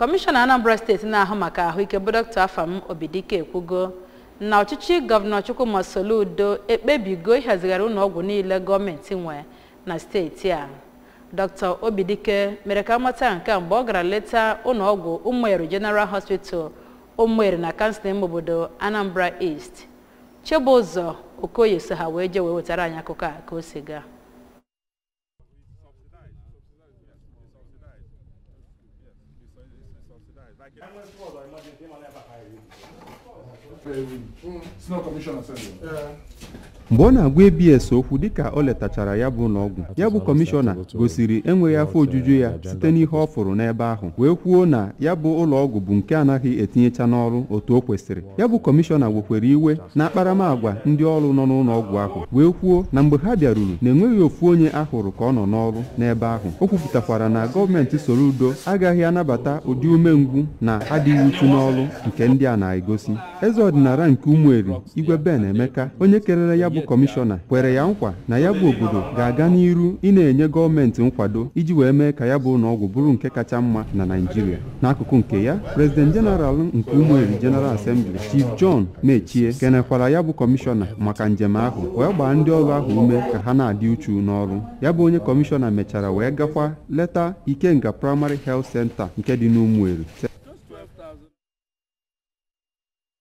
kọmishọna anambra steeti na-ahụ maka ahụike bụ dọkta afam obidike ekwugo na ọchịchị gọvanọ chukwuma udo ekpebigo ịhazigharị ụlọ ọgwụ niile gọọmenti nwe na steeti a dọkta obidike mere ka mata nke a mgbe ọ gara leta ụlọ ọgwụ ụmụeri general hospital ụmụeri na kansụl ime obodo anambra east chebụzọ okoye so ha wee jee wee wetara anyị akụkọ a ka o si gaa mgbe ọ na-agwa abs okwu dịka o letachara ya bụ n'ọgwụ ya bụ kọmishọna gosiri enweghị afọ ojuju ya site n'ihe ọ fụrụ n'ebe ahụ wee kwuo na ya bụ ụlọọgwụ bụ nke anaghị etinyecha n'ọrụ otu o kwesịrị ya bụ kọmishọna wekwere iwe na akparamagwa ndị ọrụ nọ n'ụlọọgwụ ahụ wee kwuo na mgbe ha bịaruru na enweghị ofu onye ahụrụ ka ọ nọ n'ọrụ n'ebe ahụ o kwupụtakwara na gọọmenti soro udo agaghị anabata ụdị umengwụ egwu na adịghị uchu n'ọlụ nke ndị a na-egosi eze ọdịnala nke umueri Igwe Ben Emeka onye kerere ya bụ kọmishọna kwere ya nkwa na ya bụ obodo ga-aga n'iru ị na-enye gọọmenti nkwado iji wee mee ka ya bụ ụlọọgwụ bụrụ nke kacha mma na Naịjirịa n'akụkụ nke ya prezident jeneral nke umueri jeneral asembli Chief John Mechie kenekwara ya bụ kọmishọna maka njem ahụ wee gbaa ndị ọrụ ahụ ume ka ha na-adị uchu n'ọrụ ya bụ onye kọmishọna mechara wee gakwa leta Ikenga Primary Health Center nke dị n'Ụmụeri